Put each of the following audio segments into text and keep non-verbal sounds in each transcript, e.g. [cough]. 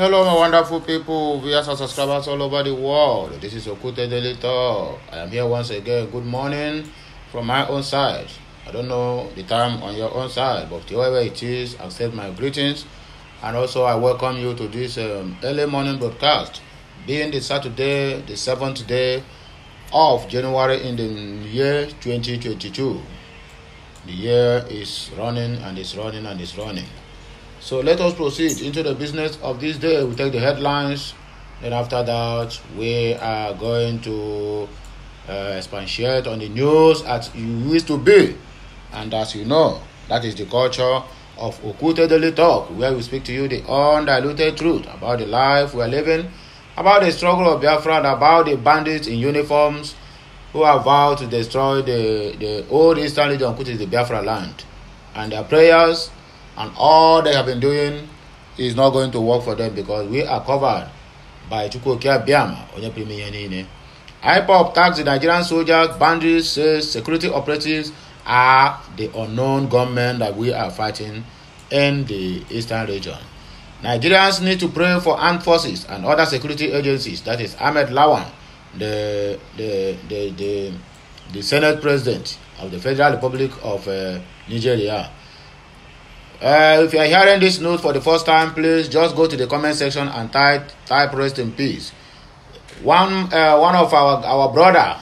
Hello, my wonderful people, viewers and subscribers all over the world. This is Okute Daily Talk. I am here once again. Good morning from my own side. I don't know the time on your own side, but wherever it is, accept my greetings. And also, I welcome you to this um, early morning broadcast, being the Saturday, the seventh day of January in the year 2022. The year is running and it's running and it's running. So let us proceed into the business of this day. We take the headlines, and after that, we are going to uh, expatiate on the news as you used to be. And as you know, that is the culture of Okute Daily Talk, where we speak to you the undiluted truth about the life we are living, about the struggle of Biafra, and about the bandits in uniforms who have vowed to destroy the, the old Eastern Legion, which is the Biafra land. And their prayers and all they have been doing is not going to work for them because we are covered by Chukwuoke Abiyama onye premier ihe niile. IPOB tags the Nigerian soldiers, bandits, says security operatives are the unknown gunmen that we are fighting in the eastern region. Nigerians need to pray for armed forces and other security agencies. That is Ahmed Lawan, the the the the, the Senate President of the Federal Republic of uh, Nigeria. Uh, if you are hearing this news for the first time, please just go to the comment section and type type rest in peace. One uh, one of our our brother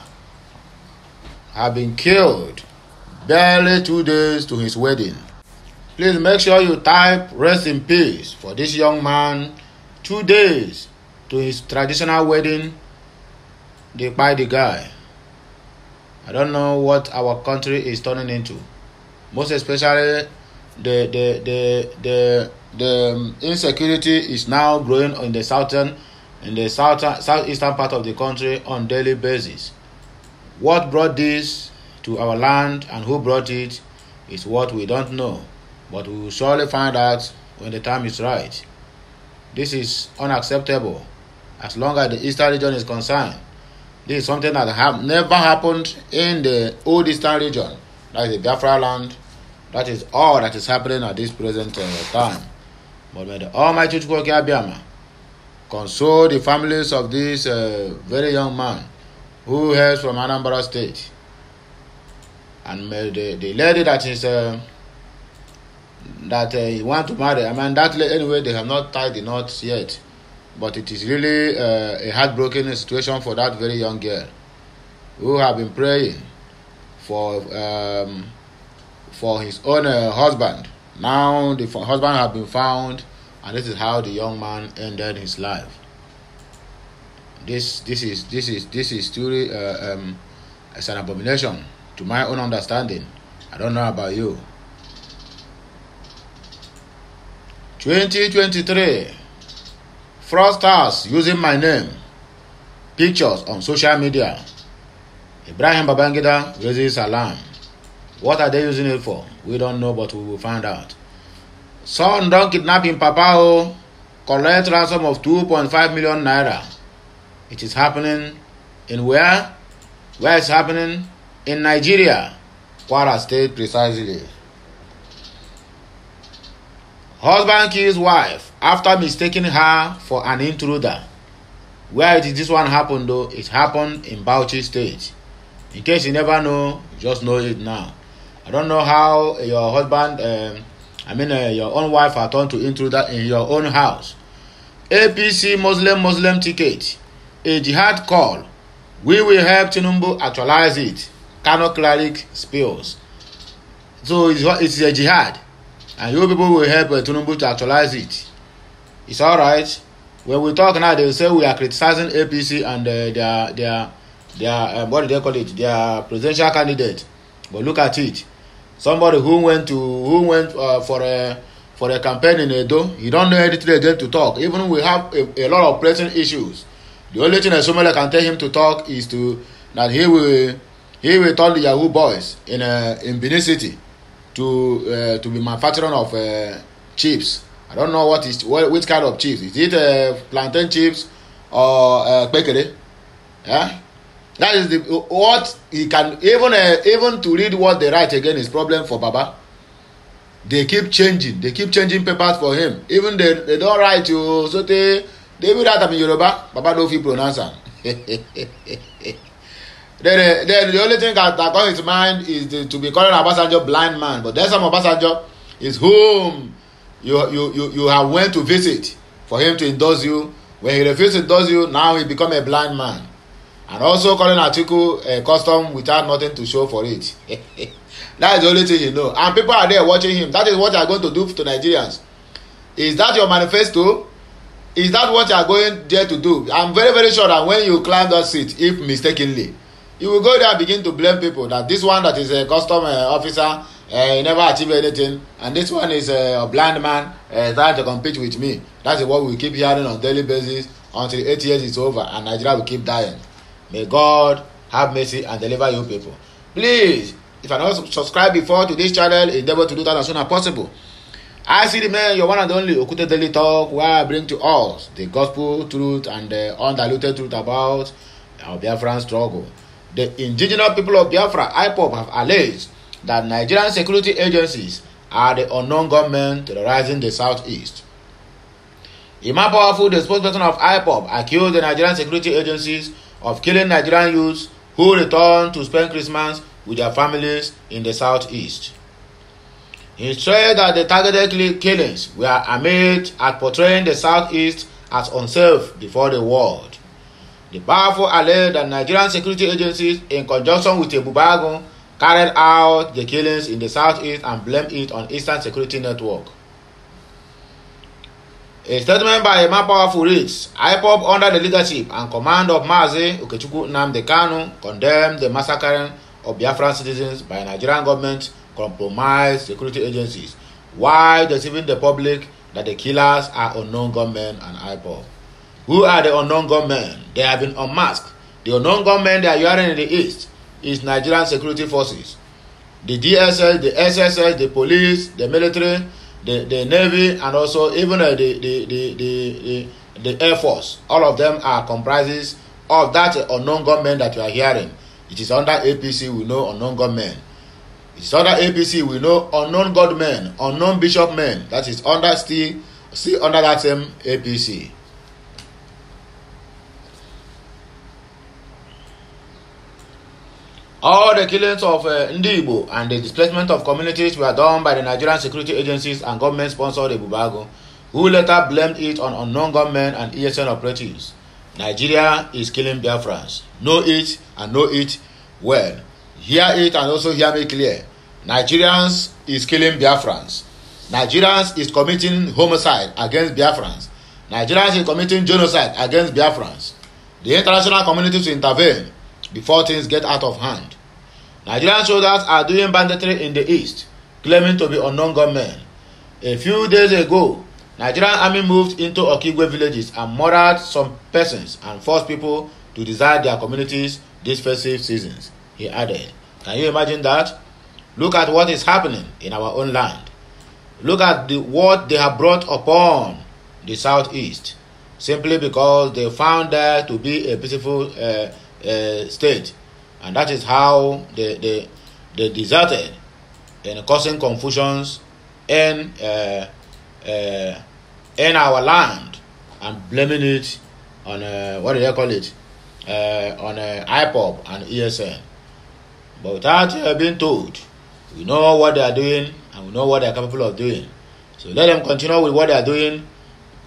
have been killed barely two days to his wedding. Please make sure you type rest in peace for this young man. Two days to his traditional wedding. They the guy. I don't know what our country is turning into. Most especially the the the the, the um, insecurity is now growing in the southern in the southern southeastern part of the country on daily basis. What brought this to our land and who brought it is what we don't know, but we will surely find out when the time is right. This is unacceptable as long as the eastern region is concerned. This is something that have never happened in the old eastern region, like the Biafra land that is all that is happening at this present uh, time. But may the Almighty Chukwoke Abiyama console the families of this uh, very young man who hails from Anambra State. And may the, the lady that is uh, that uh, he want to marry, I mean that lady anyway they have not tied the knot yet, but it is really uh, a heartbroken situation for that very young girl who have been praying for um, for his own uh, husband. Now the husband had been found, and this is how the young man ended his life. This this is this is this is truly uh, um, it's an abomination to my own understanding. I don't know about you. 2023 fraudsters using my name pictures on social media. Ibrahim Babangida raises alarm. What are they using it for? We don't know, but we will find out. Son, don't Papa. O, oh. collect ransom of 2.5 million naira. It is happening in where? Where is happening? In Nigeria, Kwara State, precisely. Husband kills wife after mistaking her for an intruder. Where did this one happen though? It happened in Bauchi State. In case you never know, just know it now. I don't know how your husband, um, I mean uh, your own wife, are turned to intruder in your own house. APC Muslim Muslim ticket, a jihad call. We will help Tinubu actualize it. Kano cleric spills. So it's, it's a jihad, and you people will help uh, to actualize it. It's all right. When we talk now, they say we are criticizing APC and uh, their their their uh, what do they call it? Their presidential candidate. But look at it. somebody who went to who went uh, for a for a campaign in Edo, he don't know anything again to talk. Even we have a, a lot of pressing issues. The only thing that somebody can tell him to talk is to that he will he will tell the Yahoo boys in uh, in Benin City to uh, to be manufacturing of uh, chips. I don't know what is what which kind of chips. Is it uh, plantain chips or uh, pekere? Yeah that is the what he can even uh, even to read what they write again is problem for baba they keep changing they keep changing papers for him even they they don write you, so tey they even write am in yoruba baba no fit pronounce am [laughs] then uh, then the only thing that that come his mind is the, to be calling obasanjo blind man but then some obasanjo is whom you you you you have went to visit for him to endorse you when he refuse to endorse you now he become a blind man and also calling article a custom without nothing to show for it [laughs] that is the only thing he know and people are there watching him that is what they are going to do to nigerians is that your manifesto is that what you are going there to do i am very very sure that when you climb that seat if mistakenly you will go there and begin to blame people that this one that is a custom uh, officer uh, he never achieve anything and this one is uh, a blind man uh, trying to compete with me that is what we keep hearing on daily basis until eight years is over and nigeria will keep dying May God have mercy and deliver your people. Please, if you're not subscribed before to this channel, endeavor to do that as soon as possible. I see the man, your one and only Okute Daily Talk, where I bring to us the gospel truth and the undiluted truth about our Biafran struggle. The indigenous people of Biafra, IPOP, have alleged that Nigerian security agencies are the unknown government terrorizing the southeast. Imam Powerful, the spokesperson of IPOP, accused the Nigerian security agencies of killing Nigerian youths who return to spend Christmas with their families in the southeast. He said that the targeted killings were aimed at portraying the southeast as unsafe before the world. The powerful alleged that Nigerian security agencies, in conjunction with Ebubagun, carried out the killings in the southeast and blamed it on Eastern Security Network. A statement by Emma Powerful Rigs, IPOB, under the leadership and command of Mazi Okechukwu Nnamdi Kanu condemned the massacring of Biafran citizens by Nigerian government compromised security agencies while deceiving the public that the killers are unknown gunmen and IPOB. Who are the unknown gunmen? They have been unmasked. The unknown gunmen they are wearing in the east is Nigerian security forces. The DSS, the SSS, the police, the military, the, the Navy, and also even uh, the, the, the, the, the, Air Force. All of them are comprises of that unknown gunmen that you are hearing. It is under APC, we know unknown gunmen It is under APC, we know unknown God men, unknown bishop men. That is under still, still under that same APC. All the killings of uh, Ndibo and the displacement of communities were done by the Nigerian security agencies and government-sponsored Ebubago, who later blamed it on unknown gunmen and ESN operatives. Nigeria is killing Biafrans. Know it and know it well. Hear it and also hear me clear. Nigerians is killing Biafrans. Nigerians is committing homicide against Biafrans. Nigerians is committing genocide against Biafrans. The international community to intervene before things get out of hand. Nigerian soldiers are doing banditry in the east, claiming to be unknown gunmen. A few days ago, Nigerian army moved into Okigwe villages and murdered some persons and forced people to desert their communities these festive seasons, he added. Can you imagine that? Look at what is happening in our own land. Look at the, what they have brought upon the southeast, simply because they found there to be a peaceful uh, uh, state, and that is how the the the deserted and causing confusions in, uh, uh, in our land and blaming it on uh, what do they call it uh, on uh, IPOP and ESN. But without uh, being told, we know what they are doing and we know what they are capable of doing. So let them continue with what they are doing.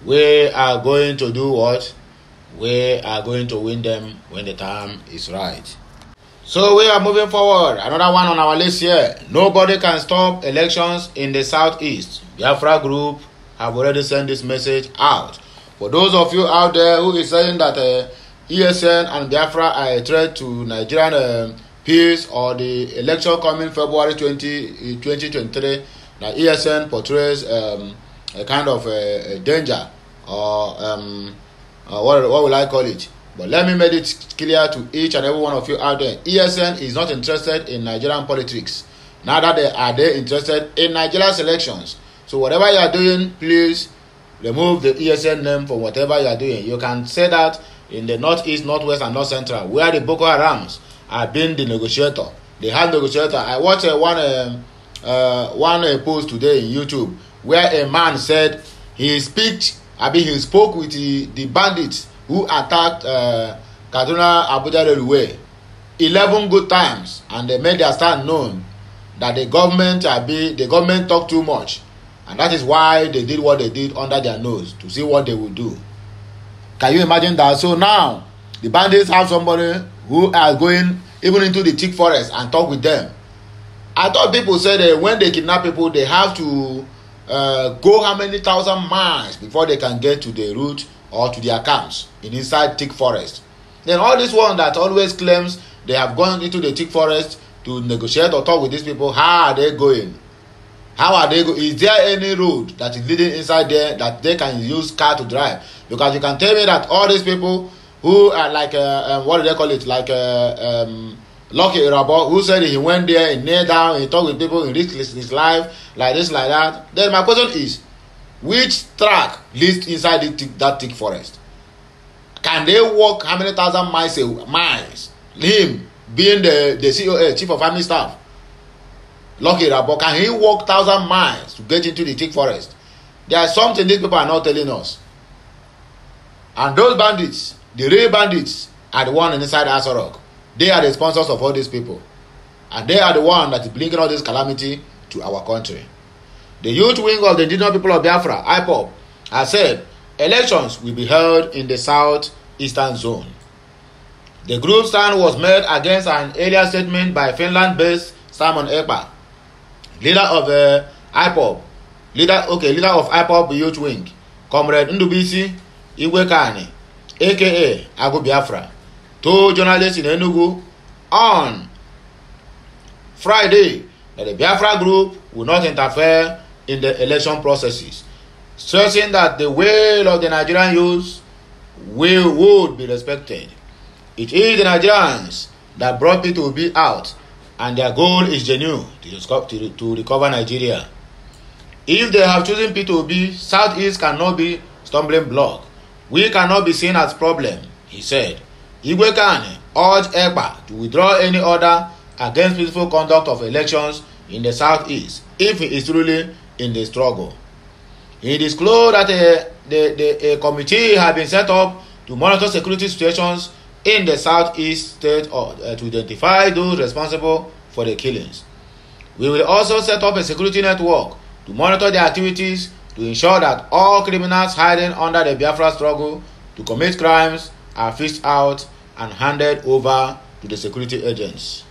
We are going to do what we are going to win them when the time is right. So we are moving forward. Another one on our list here. Nobody can stop elections in the southeast. Biafra group have already sent this message out. For those of you out there who is saying that uh, ESN and Biafra are a threat to Nigerian uh, peace or the election coming February 20, 2023, uh, now ESN portrays um, a kind of uh, a danger or um, uh, what, what will I call it? But let me make it clear to each and every one of you out there ESN is not interested in Nigerian politics. Neither they, are they interested in Nigeria's elections. So, whatever you are doing, please remove the ESN name from whatever you are doing. You can say that in the Northeast, Northwest, and North Central, where the Boko Harams are being the negotiator. They have negotiator. I watched uh, one, uh, uh, one uh, post today in YouTube where a man said his speech I mean, he spoke with the, the bandits who attacked uh, Kaduna Abuja Railway eleven good times and they made their stand known that the government abi the government talk too much and that is why they did what they did under their nose to see what they will do can you imagine that so now the bandits have somebody who are going even into the thick forest and talk with them i thought people say that when they kidnap people they have to uh, go how many thousand miles before they can get to the route or to their camps in inside thick forest then all this one that always claims they have gone into the thick forest to negotiate or talk with these people how are they going how are they go is there any road that is leading inside there that they can use car to drive because you can tell me that all these people who are like uh, um, what do they call it like uh, um, Lucky Irabo, who said he went there, he knelt down, he talked with people, he in his life, like this, like that. Then my question is, which track leads inside the thick, that thick forest? Can they walk how many thousand miles? Miles. Him being the the CEO, chief of army staff, Lucky Irabo, can he walk thousand miles to get into the thick forest? There is something these people are not telling us. And those bandits, the real bandits, are the one inside Asorok. They are the sponsors of all these people. And they are the one that is bringing all this calamity to our country. The youth wing of the indigenous people of Biafra, IPOB, has said elections will be held in the southeastern zone. The group stand was made against an earlier statement by Finland-based Simon Ekpa, leader of the uh, IPOB, leader okay, leader of IPOB Youth Wing, Comrade Ndubisi Iwekani, aka Agu Biafra, To journalists in Enugu on Friday that the Biafra group will not interfere in the election processes, stressing that the will of the Nigerian youth will would be respected. It is the Nigerians that brought me to be out, and their goal is genuine to, to, to recover Nigeria. If they have chosen P2B, Southeast cannot be stumbling block. We cannot be seen as problem, he said. Igwe Kani urged EPA to withdraw any order against peaceful conduct of elections in the southeast if he is truly in the struggle. He disclosed that a, uh, the, the, a committee had been set up to monitor security situations in the southeast state or, uh, to identify those responsible for the killings. We will also set up a security network to monitor their activities to ensure that all criminals hiding under the Biafra struggle to commit crimes are fished out and handed over to the security agents.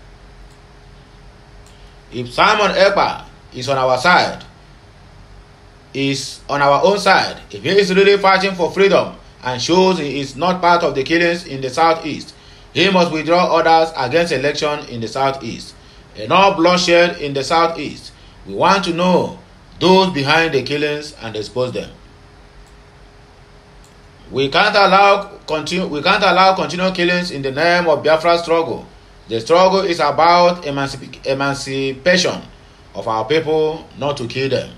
If Simon Epa is on our side, is on our own side, if he is really fighting for freedom and shows he is not part of the killings in the southeast, he must withdraw orders against election in the southeast. Enough bloodshed in the southeast. We want to know those behind the killings and expose them. We can't allow continue, we can't allow continual killings in the name of Biafra struggle. The struggle is about emancip emancipation of our people, not to kill them.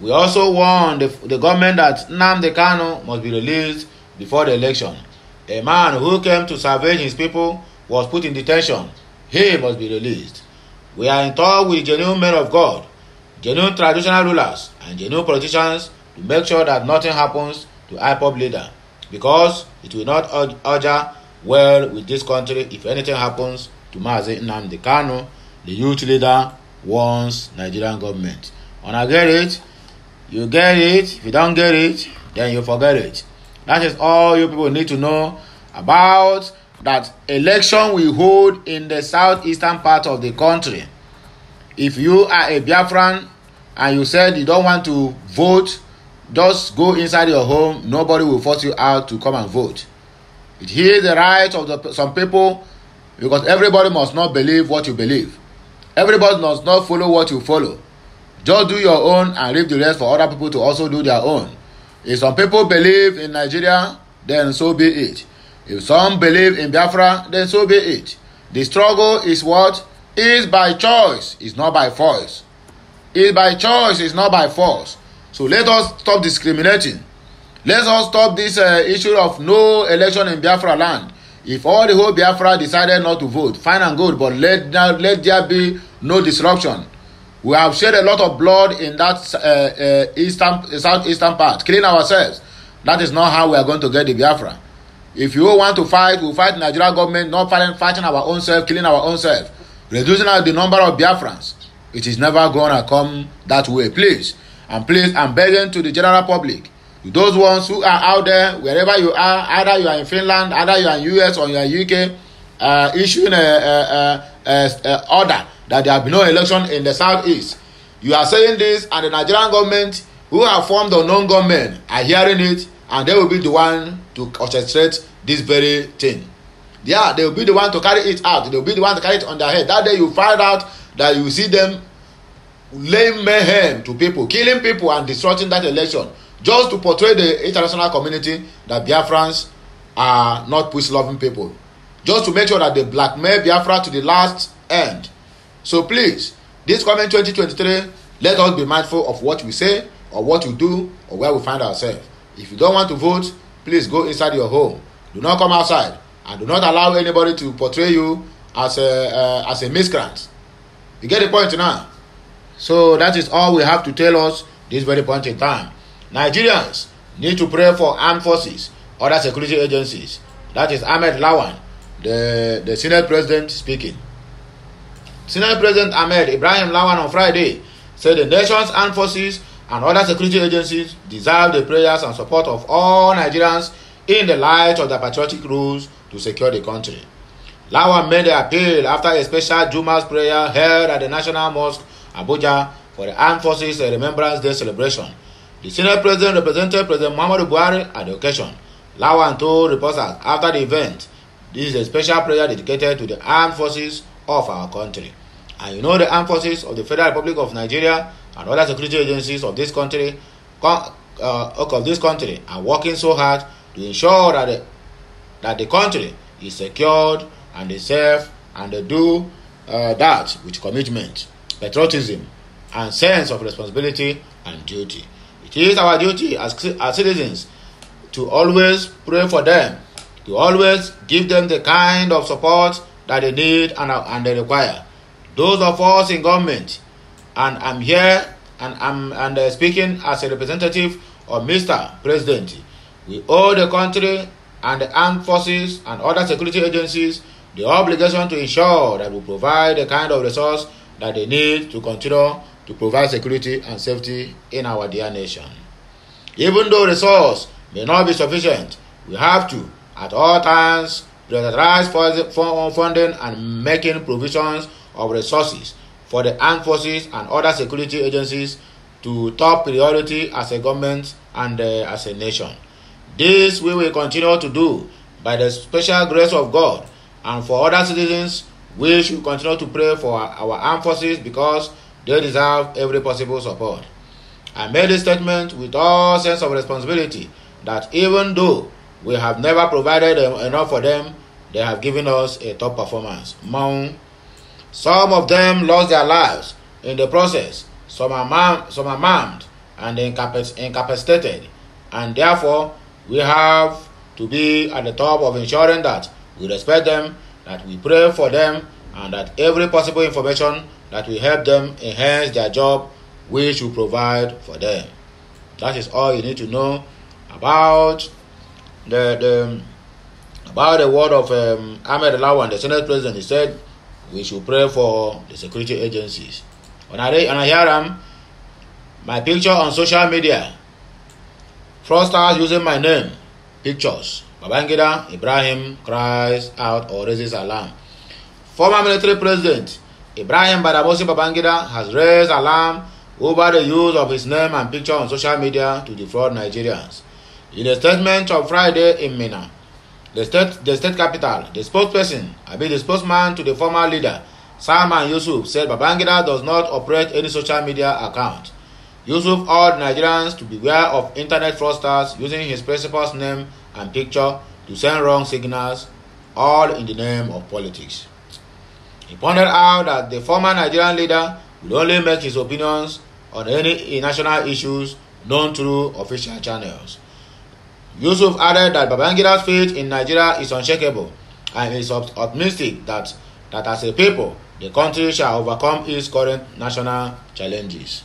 We also warn the, the government that Nnamdi Kanu must be released before the election. A man who came to salvage his people was put in detention. He must be released. We are in touch with genuine men of God, genuine traditional rulers, and genuine politicians to make sure that nothing happens to IPOB leader. because it will not order well with this country if anything happens to Mazi Nnamdi Kanu, the youth leader warns Nigerian government. Una get it? You get it. If you don't get it, then you forget it. That is all you people need to know about that election we hold in the southeastern part of the country. If you are a Biafran and you said you don't want to vote Just go inside your home. Nobody will force you out to come and vote. It is the right of the, some people because everybody must not believe what you believe. Everybody must not follow what you follow. Just do your own and leave the rest for other people to also do their own. If some people believe in Nigeria, then so be it. If some believe in Biafra, then so be it. The struggle is what? Is by choice, is not by force. Is by choice, is not by force. So let us stop discriminating. Let us stop this uh, issue of no election in Biafra land. If all the whole Biafra decided not to vote, fine and good, but let, let there be no disruption. We have shed a lot of blood in that uh, uh, eastern, southeastern part, killing ourselves. That is not how we are going to get the Biafra. If you want to fight, we'll fight Nigeria government, not fighting, fighting our own self, killing our own self, reducing the number of Biafrans. It is never going to come that way. Please, and please, and begging to the general public those ones who are out there wherever you are either you are in finland either you are in us or you are in uk uh, issuing a, a, a, a, a order that there be no election in the southeast you are saying this and the nigerian government who have formed unknown government are hearing it and they will be the one to orchestrate this very thing yeah they will be the one to carry it out they will be the one to carry it on their head that day you find out that you see them laying mayhem to people killing people and disrupting that election just to portray the international community that biafrans are not peace loving people just to make sure that they blackmail biafra to the last end so please this coming 2023 let us be mindful of what we say or what we do or where we find ourselves if you don't want to vote please go inside your home do not come outside and do not allow anybody to portray you as a uh, as a miscreant you get the point now So that is all we have to tell us this very point in time. Nigerians need to pray for armed forces, other security agencies. That is Ahmed Lawan, the, the Senate President speaking. Senate President Ahmed Ibrahim Lawan on Friday said the nation's armed forces and other security agencies deserve the prayers and support of all Nigerians in the light of the patriotic rules to secure the country. Lawan made the appeal after a special Juma's prayer held at the National Mosque Abuja for the Armed Forces Remembrance Day celebration. The senior president represented President Muhammadu Buhari at the occasion. Lawan told reporters after the event, this is a special prayer dedicated to the armed forces of our country. And you know the armed forces of the Federal Republic of Nigeria and other security agencies of this country uh, of this country are working so hard to ensure that the, that the country is secured and they serve and they do uh, that with commitment. patriotism, and sense of responsibility and duty. It is our duty as, as citizens to always pray for them, to always give them the kind of support that they need and, and they require. Those of us in government, and I'm here and I'm and, uh, speaking as a representative of Mr. President, we owe the country and the armed forces and other security agencies the obligation to ensure that we provide the kind of resource that they need to continue to provide security and safety in our dear nation. Even though resources may not be sufficient, we have to, at all times, prioritize funding and making provisions of resources for the armed forces and other security agencies to top priority as a government and uh, as a nation. This we will continue to do by the special grace of God and for other citizens We should continue to pray for our armed forces because they deserve every possible support. I made this statement with all sense of responsibility that even though we have never provided enough for them, they have given us a top performance. Some of them lost their lives in the process. Some are, mam- some are maimed and incapac- incapacitated, and therefore we have to be at the top of ensuring that we respect them that we pray for them and that every possible information that will help them enhance their job, we should provide for them. That is all you need to know about the, the about the word of um, Ahmed Lawan, the Senate President. He said we should pray for the security agencies. When I, when I hear them, my picture on social media, fraudsters using my name, Pictures Babangida Ibrahim cries out or raises alarm. Former military president Ibrahim Badabosi Babangida has raised alarm over the use of his name and picture on social media to defraud Nigerians. In a statement on Friday in Minna, the state, the state capital, the spokesperson, I mean the spokesman to the former leader, Salman Yusuf, said Babangida does not operate any social media account. Yusuf urged Nigerians to beware of internet fraudsters using his principal's name and picture to send wrong signals, all in the name of politics. He pointed out that the former Nigerian leader would only make his opinions on any national issues known through official channels. Yusuf added that Babangida's faith in Nigeria is unshakable and is optimistic that, that as a people, the country shall overcome its current national challenges.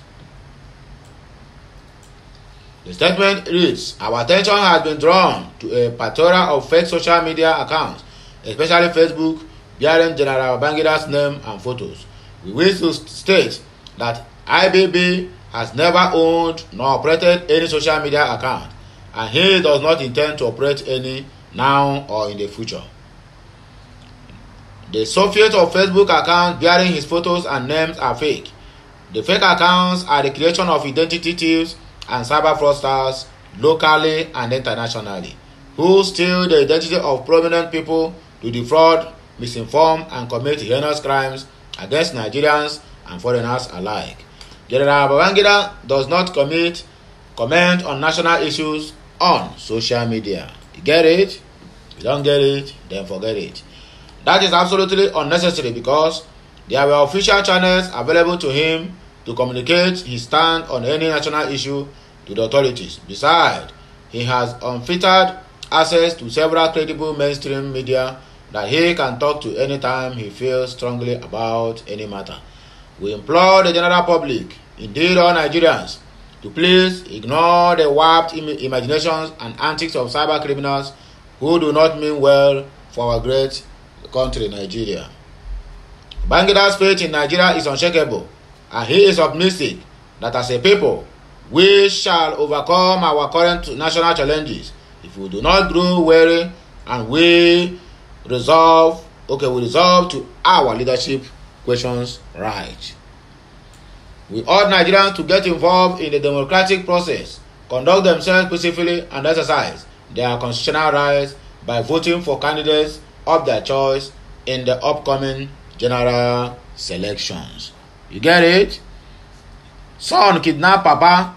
The statement reads Our attention has been drawn to a plethora of fake social media accounts, especially Facebook, bearing General Bangida's name and photos. We wish to state that IBB has never owned nor operated any social media account, and he does not intend to operate any now or in the future. The Soviet of Facebook accounts bearing his photos and names are fake. The fake accounts are the creation of identity thieves and cyber fraudsters locally and internationally who steal the identity of prominent people to defraud, misinform, and commit heinous crimes against Nigerians and foreigners alike. General Babangida does not commit comment on national issues on social media. You get it? You don't get it, then forget it. That is absolutely unnecessary because there were official channels available to him to communicate his stand on any national issue to the authorities. Besides, he has unfettered access to several credible mainstream media that he can talk to anytime he feels strongly about any matter. We implore the general public, indeed all Nigerians, to please ignore the warped Im imaginations and antics of cyber criminals who do not mean well for our great country, Nigeria. Bangida's faith in Nigeria is unshakable and he is optimistic that as a people we shall overcome our current national challenges if we do not grow weary and we resolve okay we resolve to our leadership questions right. We urge Nigerians to get involved in the democratic process, conduct themselves peacefully, and exercise their constitutional rights by voting for candidates of their choice in the upcoming general selections. You get it? Son kidnap Papa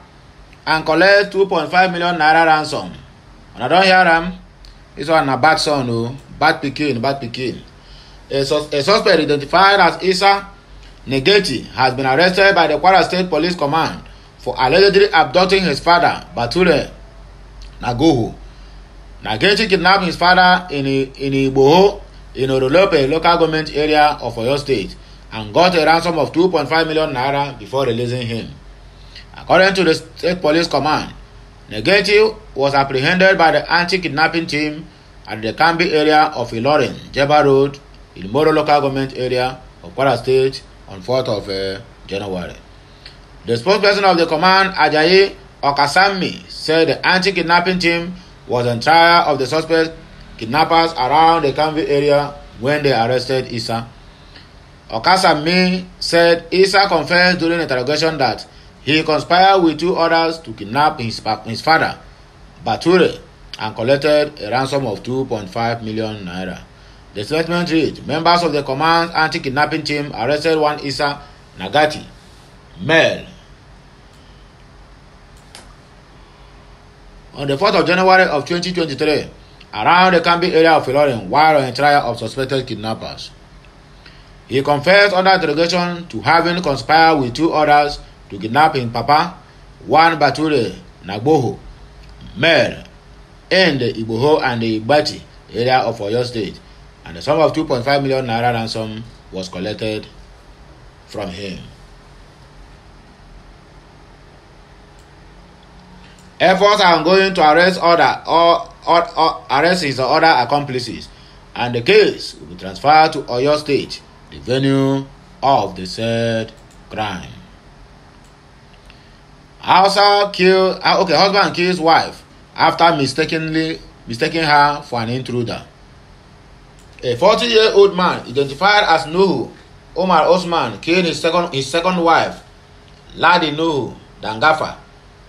and collect 2.5 million naira ransom. And I don hear am. This one na bad son o. Oh. Bad pikin, bad pikin. A, sus a suspect identified as Isa Negeti has been arrested by the Kwara State Police Command for allegedly abducting his father, Bature Nagoho. Nagechi kidnapped his father in, in Igboho in Orolope local government area of Oyo State and got a ransom of 2.5 million naira before releasing him. According to the state police command, Negeti was apprehended by the anti-kidnapping team at the Kambi area of Ilorin, Jeba Road, in local government area of Kwara State on 4th of uh, January. The spokesperson of the command, Ajayi Okasami, said the anti-kidnapping team was on trial of the suspect kidnappers around the Kambi area when they arrested Isa Okasa Okasami said Isa confessed during interrogation that he conspired with two others to kidnap his, his father, Bature, and collected a ransom of 2.5 million naira. The statement read Members of the command anti kidnapping team arrested one Isa Nagati, Mel. On the 4th of January of 2023, around the Kambi area of Ilorin, while on a trial of suspected kidnappers. He confessed under interrogation to having conspired with two others to kidnap his papa, one Baturi, Nagboho, Mer, in the Iboho and the Ibati area of Oyo State, and the sum of 2.5 million naira ransom was collected from him. Efforts are ongoing to arrest other or, or, or arrest his other accomplices, and the case will be transferred to Oyo State the venue of the said crime. Husband kill ah, okay, husband his wife after mistakenly mistaking her for an intruder. A forty year old man identified as Nuhu Omar Osman killed his second his second wife, Ladi Nuhu Dangafa,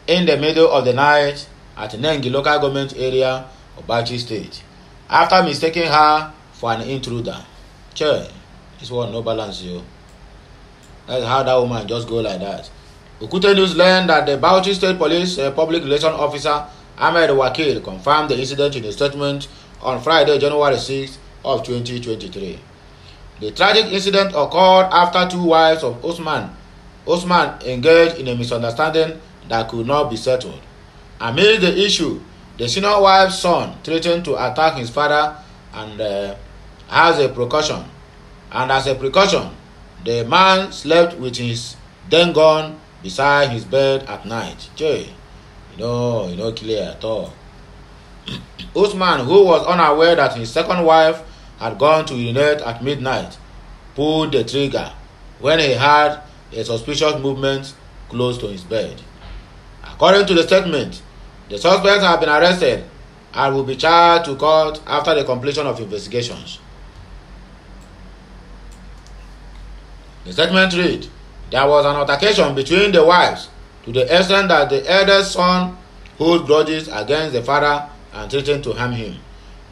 in the middle of the night at Nengi local government area of Bachi State after mistaking her for an intruder. Che. This one no balance you. That's how that woman just go like that. Okute News learned that the Bauchi State Police uh, Public Relation Officer Ahmed Wakil confirmed the incident in a statement on Friday, January 6 of 2023. The tragic incident occurred after two wives of Osman Osman engaged in a misunderstanding that could not be settled. Amid the issue, the senior wife's son threatened to attack his father and uh, has a precaution and as a precaution the man slept with his gun beside his bed at night jay you know you know clear at all [clears throat] usman who was unaware that his second wife had gone to urinate at midnight pulled the trigger when he heard a suspicious movement close to his bed according to the statement the suspects have been arrested and will be charged to court after the completion of investigations. The statement read There was an altercation between the wives to the extent that the eldest son holds grudges against the father and threatened to harm him.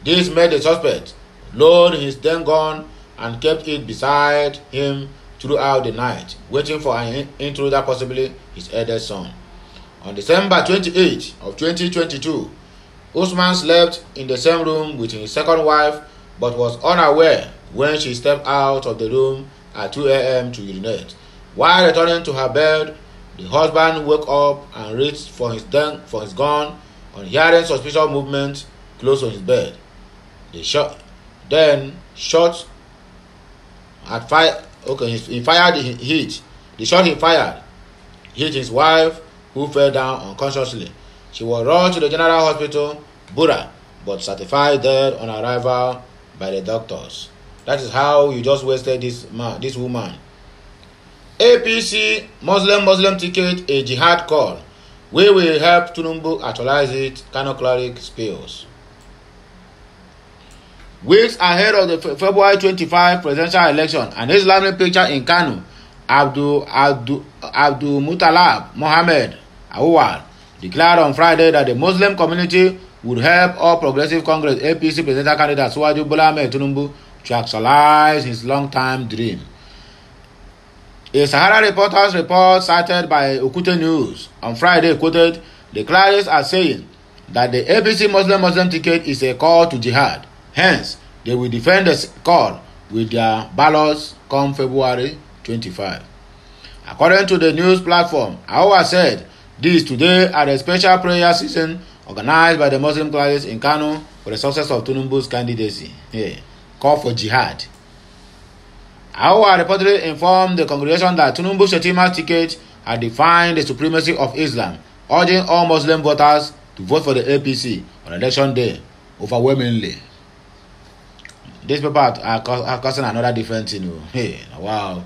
This made the suspect load his then gun and kept it beside him throughout the night, waiting for an intruder, possibly his eldest son. On December 28 of 2022, Usman slept in the same room with his second wife but was unaware when she stepped out of the room at 2 a.m. to urinate. While returning to her bed, the husband woke up and reached for his, den- for his gun on hearing suspicious movement close to his bed. They shot, then shot at fire. Okay, he, fired he hit. The shot he fired hit his wife, who fell down unconsciously. She was rushed to the general hospital, Bura, but certified dead on arrival by the doctors. That is how you just wasted this man, this woman. APC Muslim Muslim ticket a jihad call. We will help Tunumbu actualize it. Kano cleric spills. Weeks ahead of the Fe February 25 presidential election, an Islamic picture in Kano, Abdul Abdul Abdul Mutalab Mohammed Awal declared on Friday that the Muslim community would help all Progressive Congress APC presidential candidate Suwaju Bola Ahmed Tunumbu to actualize his long-time dream. A Sahara Reporter's report cited by Okute News on Friday quoted the clerics as saying that the APC Muslim Muslim ticket is a call to jihad. Hence, they will defend the call with their ballots come February 25. According to the news platform, Aowa said this today at a special prayer season organized by the Muslim clerics in Kano for the success of Tunumbu's candidacy. Yeah. call for jihad. Aowa reportedly informed the congregation that Tinubu Shetima ticket had defined the supremacy of Islam, urging all Muslim voters to vote for the APC on election day overwhelmingly. This people are, causing another difference. thing. You oh. Hey, wow.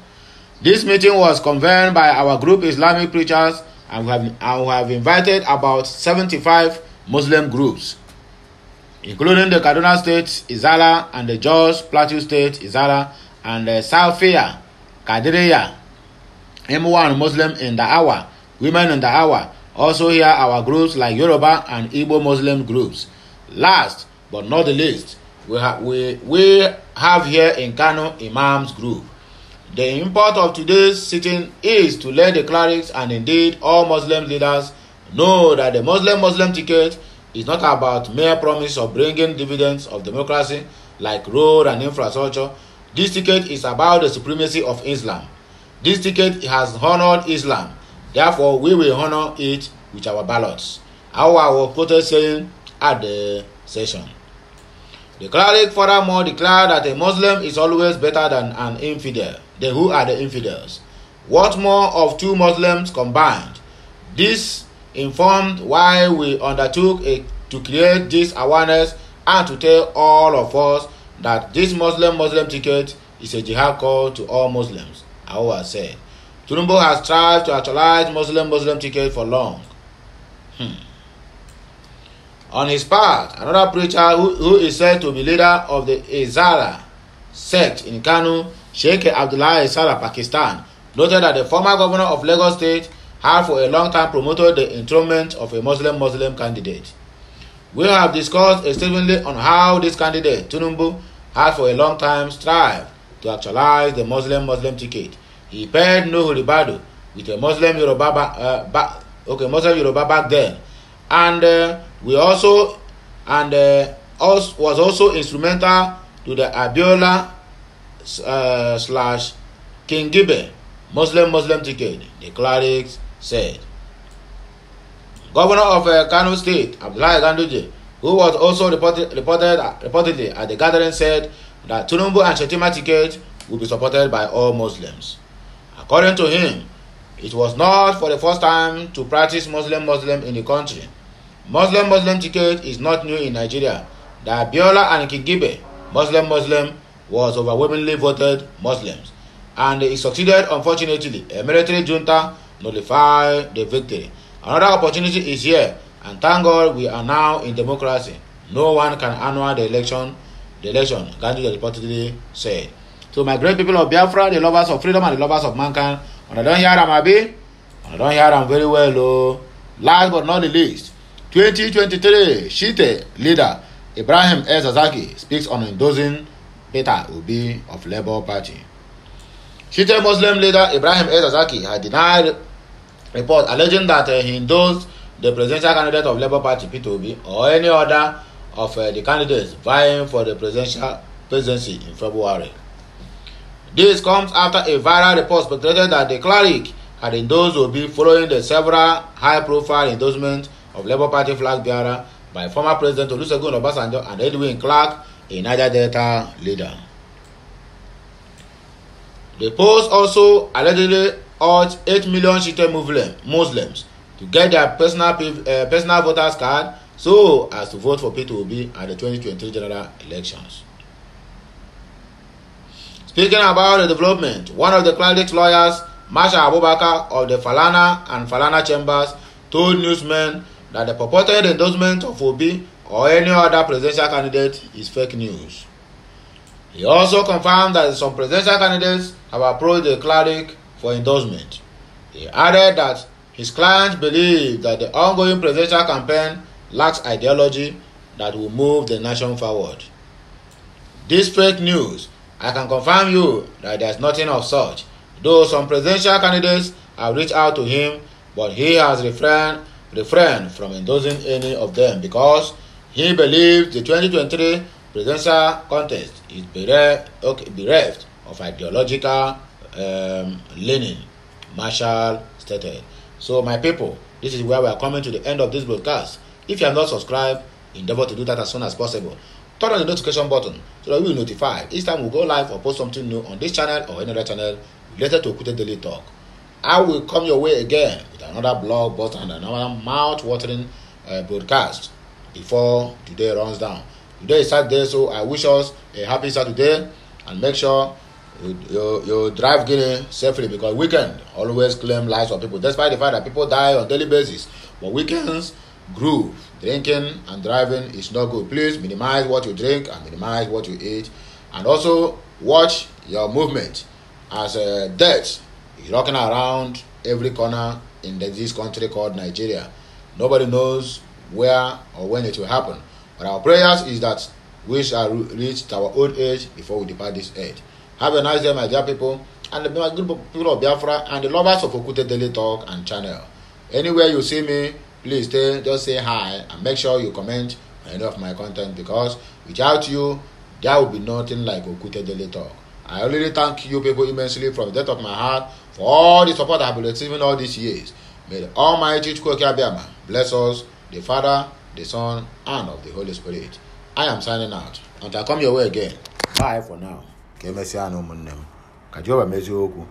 This meeting was convened by our group Islamic preachers and we have, and we have invited about 75 Muslim groups including the Kaduna State, Izala, and the Jos Plateau State, Izala, and the Salfia, Kadiriya, M1 Muslim in the hour, women in the hour. Also here our groups like Yoruba and Igbo Muslim groups. Last but not the least, we, ha- we, we have here in Kano Imams group. The import of today's sitting is to let the clerics and indeed all Muslim leaders know that the Muslim Muslim ticket is not about mere promise of bringing dividends of democracy like road and infrastructure. This ticket is about the supremacy of Islam. This ticket has honored Islam. Therefore, we will honor it with our ballots. How our protest saying at the session. The cleric furthermore declared that a Muslim is always better than an infidel. Then who are the infidels? What more of two Muslims combined? This informed why we undertook a, to create this awareness and to tell all of us that this Muslim Muslim ticket is a jihad call to all Muslims, Aowa said. Tinubu has tried to actualize Muslim Muslim ticket for long. Hmm. On his part, another preacher who, who is said to be leader of the Izala sect in Kanu, Sheikh Abdullah Izala, Pakistan, noted that the former governor of Lagos State have for a long time promoted the enthronement of a Muslim Muslim candidate. We have discussed extensively on how this candidate, Tunumbu, has for a long time strived to actualize the Muslim Muslim ticket. He paired Nuhu Ribadu with a Muslim Yoruba, uh, back, okay, Muslim Yoruba back then, and uh, we also and uh, also, was also instrumental to the Abiola uh, slash King Gibe Muslim Muslim ticket, the clerics, said. Governor of uh, Kano State, Abdullahi Ganduje, who was also reported, reported, uh, reportedly at the gathering, said that Tinubu and Shetima ticket will be supported by all Muslims. According to him, it was not for the first time to practice Muslim Muslim in the country. Muslim Muslim ticket is not new in Nigeria. That Biola and Kigibe Muslim Muslim was overwhelmingly voted Muslims, and it succeeded, unfortunately, a military junta nullify the victory. Another opportunity is here, and thank God we are now in democracy. No one can annul the election. The election, Gandhi reportedly said. To my great people of Biafra, the lovers of freedom and the lovers of mankind, when I don't hear them, Abi, when I don't hear them very well, oh. Last but not the least, 2023 Shite leader Ibrahim Ezazaki speaks on endorsing Peter Obi of Labour Party. Shite Muslim leader Ibrahim Ezazaki Zazaki had denied report alleging that uh, he endorsed the presidential candidate of Labour Party Peter Obi or any other of uh, the candidates vying for the presidential presidency in February. This comes after a viral report speculated that the cleric had endorsed Obi following the several high-profile endorsements of Labour Party flag bearer by former President Olusegun Obasanjo and Edwin Clark, a Niger Delta leader. The post also allegedly urged 8 million Shite Muslim, Muslims to get their personal, uh, personal voters card so as to vote for Peter Obi at the 2023 general elections. Speaking about the development, one of the clerics lawyers, Masha Abubakar of the Falana and Falana chambers, told newsmen that the purported endorsement of Obi or any other presidential candidate is fake news. He also confirmed that some presidential candidates have approached the cleric for endorsement. He added that his clients believe that the ongoing presidential campaign lacks ideology that will move the nation forward. This fake news, I can confirm you that there's nothing of such, though some presidential candidates have reached out to him, but he has refrained, refrained from endorsing any of them because he believes the 2023 presidential contest is bereft, okay, bereft of ideological um, Lenin, Marshall stated. So, my people, this is where we are coming to the end of this broadcast. If you have not subscribed, endeavor to do that as soon as possible. Turn on the notification button so that we will notify each time we go live or post something new on this channel or any other channel related to Okute Daily Talk. I will come your way again with another blog post and another mouth-watering uh, broadcast before today runs down. Today is Saturday, so I wish us a happy Saturday and make sure You, drive Guinea safely because weekend always claim lives of people, despite the fact that people die on daily basis. But weekends groove. Drinking and driving is not good. Please minimize what you drink and minimize what you eat. And also watch your movement as a uh, death is rocking around every corner in this country called Nigeria. Nobody knows where or when it will happen. But our prayers is that we shall reach our old age before we depart this earth. Have a nice day, my dear people, and the good people of Biafra and the lovers of Okute Daily Talk and channel. Anywhere you see me, please stay, just say hi and make sure you comment on any of my content because without you, there will be nothing like Okute Daily Talk. I already thank you people immensely from the depth of my heart for all the support I've been receiving all these years. May the Almighty Chukwuke Abiyama bless us, the Father, the Son, and of the Holy Spirit. I am signing out. Until I come your way again. Bye for now. ka emesịa na ụmụnne m ka Jehova mezie okwu